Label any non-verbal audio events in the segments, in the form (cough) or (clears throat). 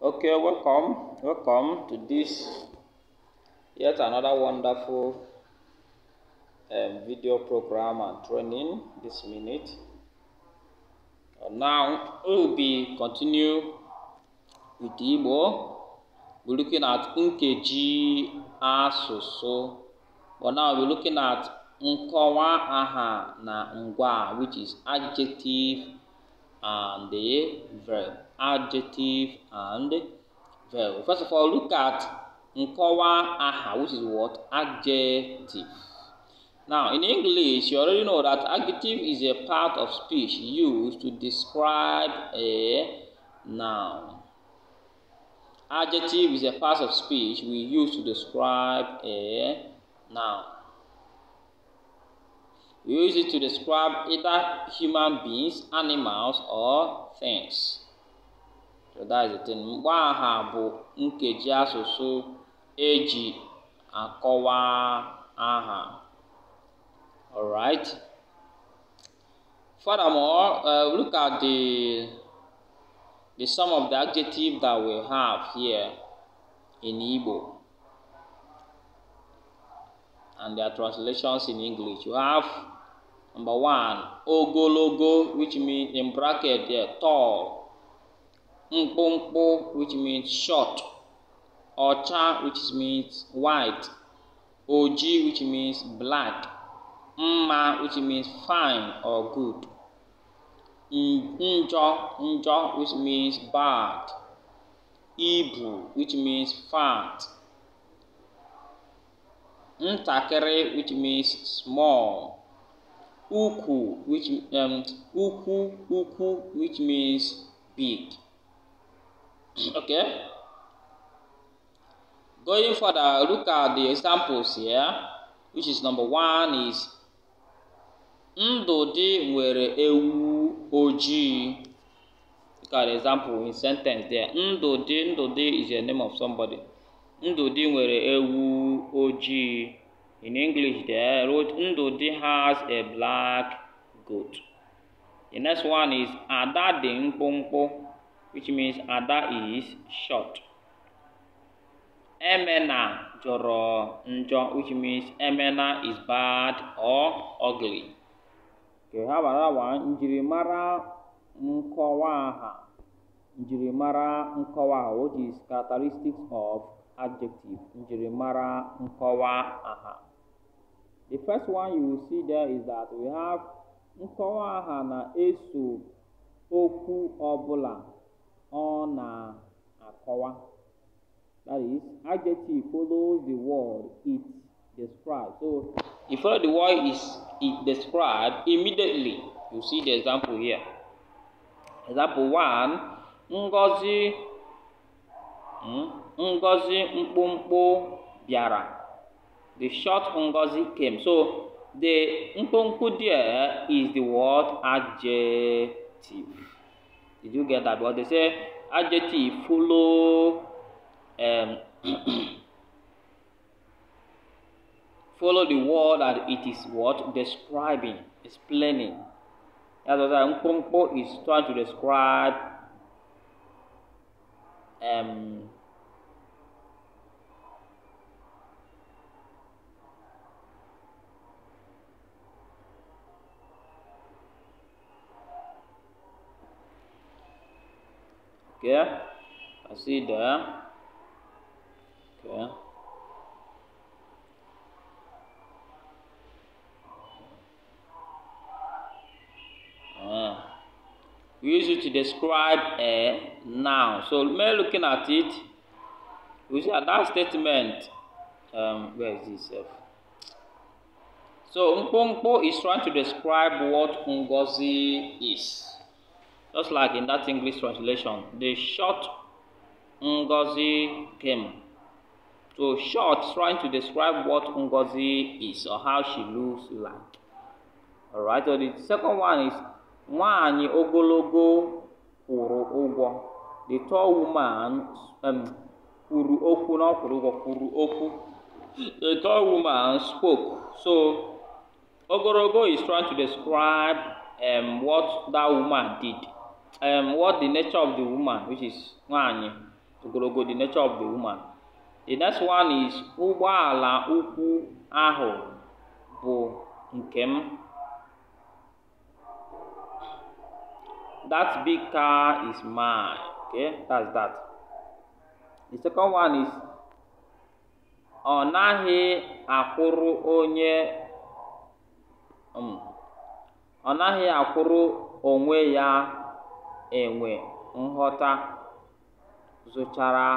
Okay, welcome, welcome to this yet another wonderful um, video program and training this minute. And uh, now we will be continue with Igbo. We're looking at Nkeji Asusu. But now we're looking at Nkowa Aha na Ngwa, which is adjective and the verb adjective, and verb. First of all, look at Nkowa aha, which is what? Adjective. Now, in English, you already know that adjective is a part of speech used to describe a noun. Adjective is a part of speech we use to describe a noun. We use it to describe either human beings, animals, or things. Yọdaizete mkpọaha bụ nkeji asụsụ e akọwa aha. Alright. Furthermore, uh, look at the the some of the adjectives that we have here in Igbo and their translations in English. You have number one, ogologo, which means in bracket yeah, tall. mkpụmkpụ which means short ọcha which means white oji which means black mma which means fine or good njọ njọ which means bad ibu which means fat ntakịrị which means small ukwu which um, ukwu ukwu which means big okay going further look at the examples here which is number one is ndụdị nwere ewu ojii look at the example in sentence there ndụ ndụdị is the name of somebody ndụdị nwere ewu ojii in english there wrote ndụdị has a black goat the next one is ada dị mkpụmkpụ which means Ada is short. Emena joro njo which means Emena is bad or ugly. Okay, how about that one? Njirimara nkowaha. Njirimara nkowaha, which is characteristics of adjective. Njirimara nkowaha. The first one you will see there is that we have nkowaha na eso okwu ọbụla ọ na-akọwa. That is, adjective follows the word it describes. So, if follow the word is it described immediately. You see the example here. Example one, Ngozi hmm, Ngozi mkpụmkpụ bịara. The short Ngozi came. So, the mkpụmkpụ there is the word adjective. Did you get that? But they say adjective follow um, (clears throat) follow the word that it is what describing, explaining. That's what Nkrumpo is trying to describe um, Okay, ah. eh, I see كيف Okay, we use it to describe a noun. So when looking at it, we see that, statement. Um, where is this? Eh? So Nkpo is trying to describe what Ngozi is. Just like in that English translation, the short Ngozi came. So short trying to describe what Ngozi is or how she looks like. Alright, so the second one is Nwani Ogologo Kwuru Ụgwọ. The tall woman um, kuru oku na kwuru kuru oku. The tall woman spoke. So Ogologo is trying to describe um, what that woman did. um, what the nature of the woman, which is nwanyi ogologo the nature of the woman. The next one is ụgbọala ukwu ahụ bụ nke m. That big car is mine. Okay, that's that. The second one is ọ naghị akwụrụ onye um, ọ naghị akwụrụ onwe ya enwe nghọta zụchara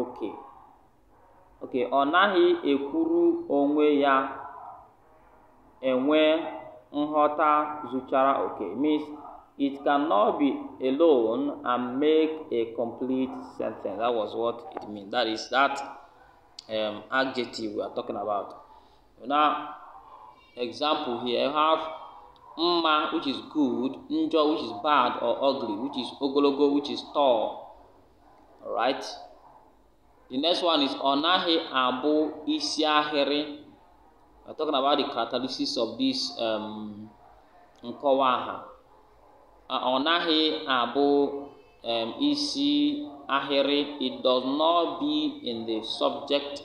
oke oke ọ naghị ekwuru onwe ya enwe nghọta zụchara oke means it cannot be alone and make a complete sentence that was what it means that is that um, adjective we are talking about now example here I have mma which is good njọ which is bad or ugly which is ogologo which is tall alright the next one is ọ naghị abụ isi ahịrị I'm talking about the characteristics of this um, nkọwa aha ọ naghị abụ um, isi ahịrị it does not be in the subject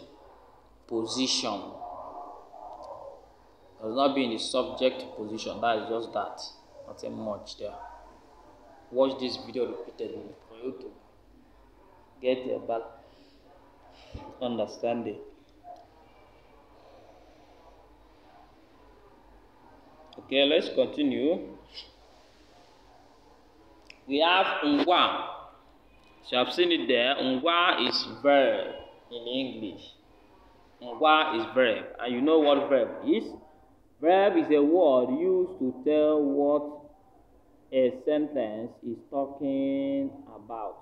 position does not be in the subject position. That is just that. Nothing much there. Watch this video repeatedly for you to get your back understanding. Okay, let's continue. We have ngwa. So I've seen it there. Ngwa is verb in English. Ngwa is verb. And you know what verb is? Verb is a word used to tell what a sentence is talking about.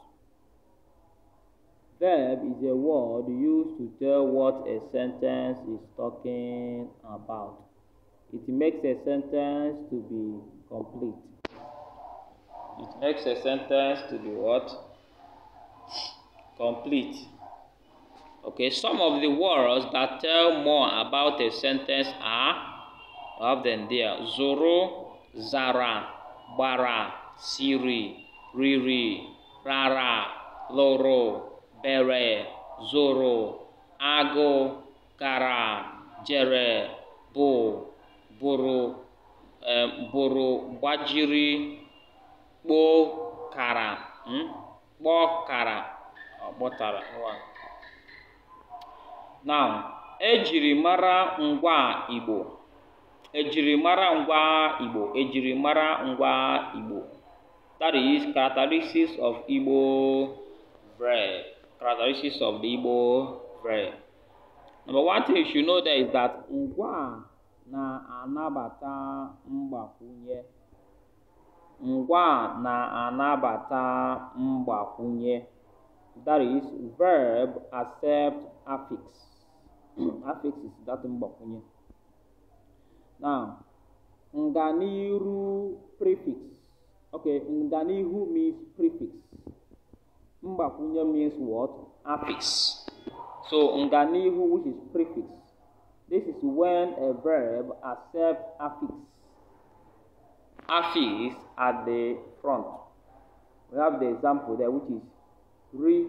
Verb is a word used to tell what a sentence is talking about. It makes a sentence to be complete. It makes a sentence to be what? Complete. Okay, some of the words that tell more about a sentence are up Zoro, zara, gbara, siri, riri, rara, loro, bere, zoro, agụ, kara jere, bụ, bụrụ, gbajiri, kara, hmm? kpọọ kara, na Now, e ngwa Igbo. ejirimara ngwa Igbo ejirimara ngwa Igbo that is characteristics of Igbo bread characteristics of the Igbo bread number one thing you should know there is that ngwa na-anabata mgbakwunye ngwa na-anabata mgbakwunye that is verb accept affix (clears throat) affix is that mgbakwunye Now, Nganiru prefix. Okay, Nganihu means prefix. Mbakunya means what? Affix. So, Nganihu, which is prefix. This is when a verb accepts affix. Affix at the front. We have the example there, which is re,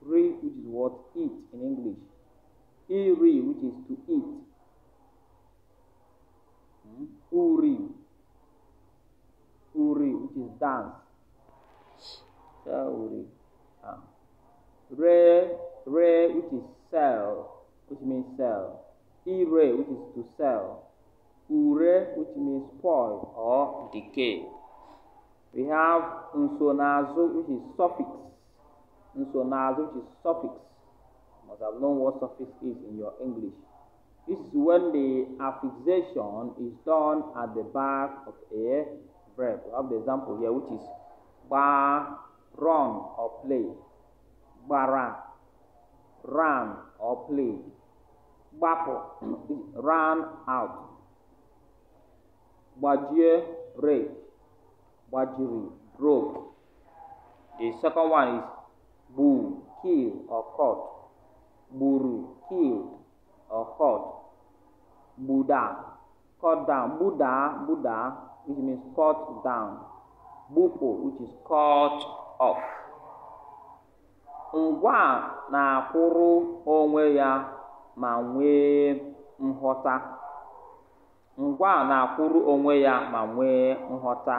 re, which is what? Eat in English. Iri, which is to eat. Uri. Uri, which is dance. Uri. Ah. Re, re, which is sell, which means sell. Ire, which is to sell. Ure, which means spoil or decay. We have nsonazo, which is suffix. Nsonazo, which is suffix. You must have known what suffix is in your English. This is when the affixation is done at the back of a verb. We have the example here, which is bar, run or play. Bara, run or play. Bapo, (clears throat) run out. Bajie, break, Bajiri, broke. The second one is boo, kill or caught. Buru, killed or caught. Buddha, cut down. Buddha, Buddha, which means cut down. Bupo, which is cut off. Ngwa na-akwụrụ onwe ya ma nwee nghọta. Ngwa na-akwụrụ onwe ya ma nwee nghọta.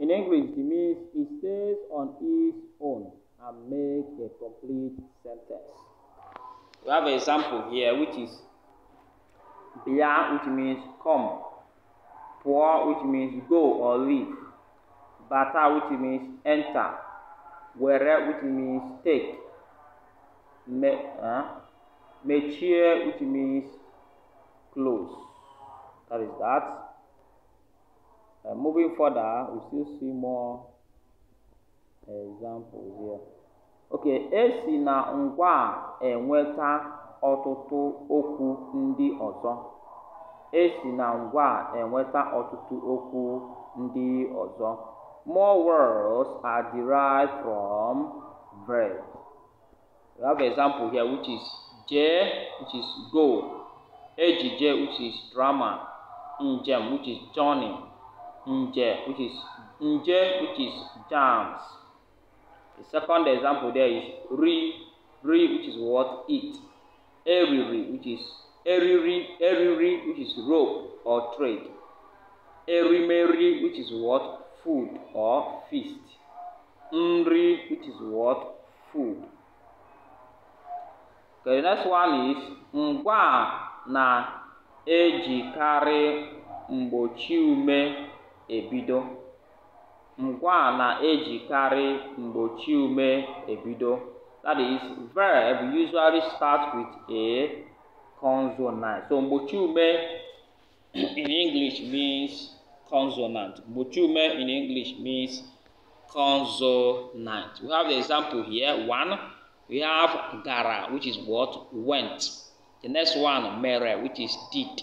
In English, it means he stays on his own and makes a complete sentence. We have an example here which is Bia, which means come. Pua, which means go or leave. Bata, which means enter. Were, which means take. Me, uh, mechie, which means close. That is that. Uh, moving further, we still see more examples here. Okay, esi na ngwa enweta ọtụtụ okwu ndị ọzọ. E si na ngwa a enweta ọtụtụ okwu ndị ọzọ. More words are derived from verb. We have example here which is jee which is go, ejije which is drama, njem which is journey, nje which is nje which is jams. The second example there is ri, ri which is what, eat. eriri which is eriri eriri which is rope or thread erimeri which is what food or feast nri which is what food okay the next one is ngwa na-ejikarị mgbochi ume ebido ngwa na-ejikarị mgbochi ume ebido That is, verb usually starts with a consonant. So mochume in English means consonant. Mochume in English means consonant. We have the example here. One, we have gara, which is what? Went. The next one, mere, which is did.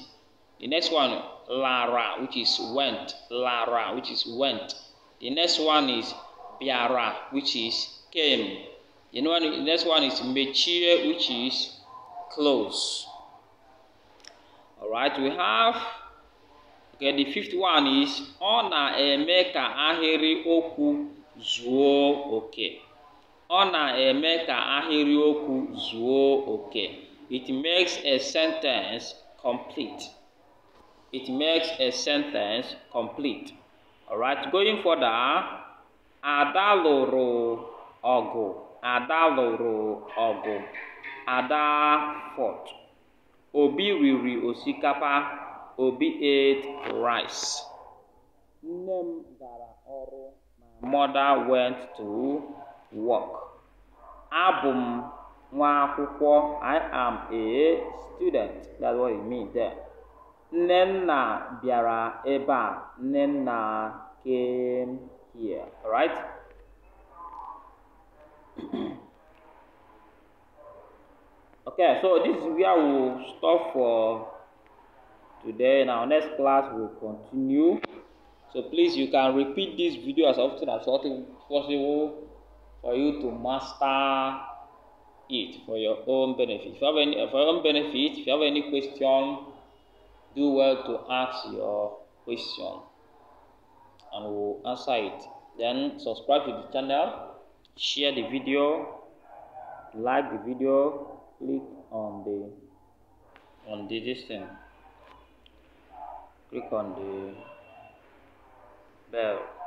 The next one, lara, which is went. Lara, which is went. The next one is biara, which is came. The next one is mature, which is close. All right, we have okay. The fifth one is ona emeka ahịrị oku zuo oke. Ona emeka ahịrị oku zuo oke. It makes a sentence complete. It makes a sentence complete. All right, going further, adaloro lụrụ Ada lụrụ ọgụ Ada fought, Obi riri osikapa, Obi ate rice. Nne m gara ọrụ my mother went to work. Abụ m nwa akwụkwọ I am a student that's what it means there. Nnenna bịara ebe a Nnenna came here. Alright? (clears throat) okay, so this is where we'll stop for today. In our next class, will continue. So please, you can repeat this video as often as possible for you to master it for your own benefit. If you have any, for your own benefit, if you have any question, do well to ask your question and we'll answer it. Then subscribe to the channel share the video like the video click on the on the this thing click on the bell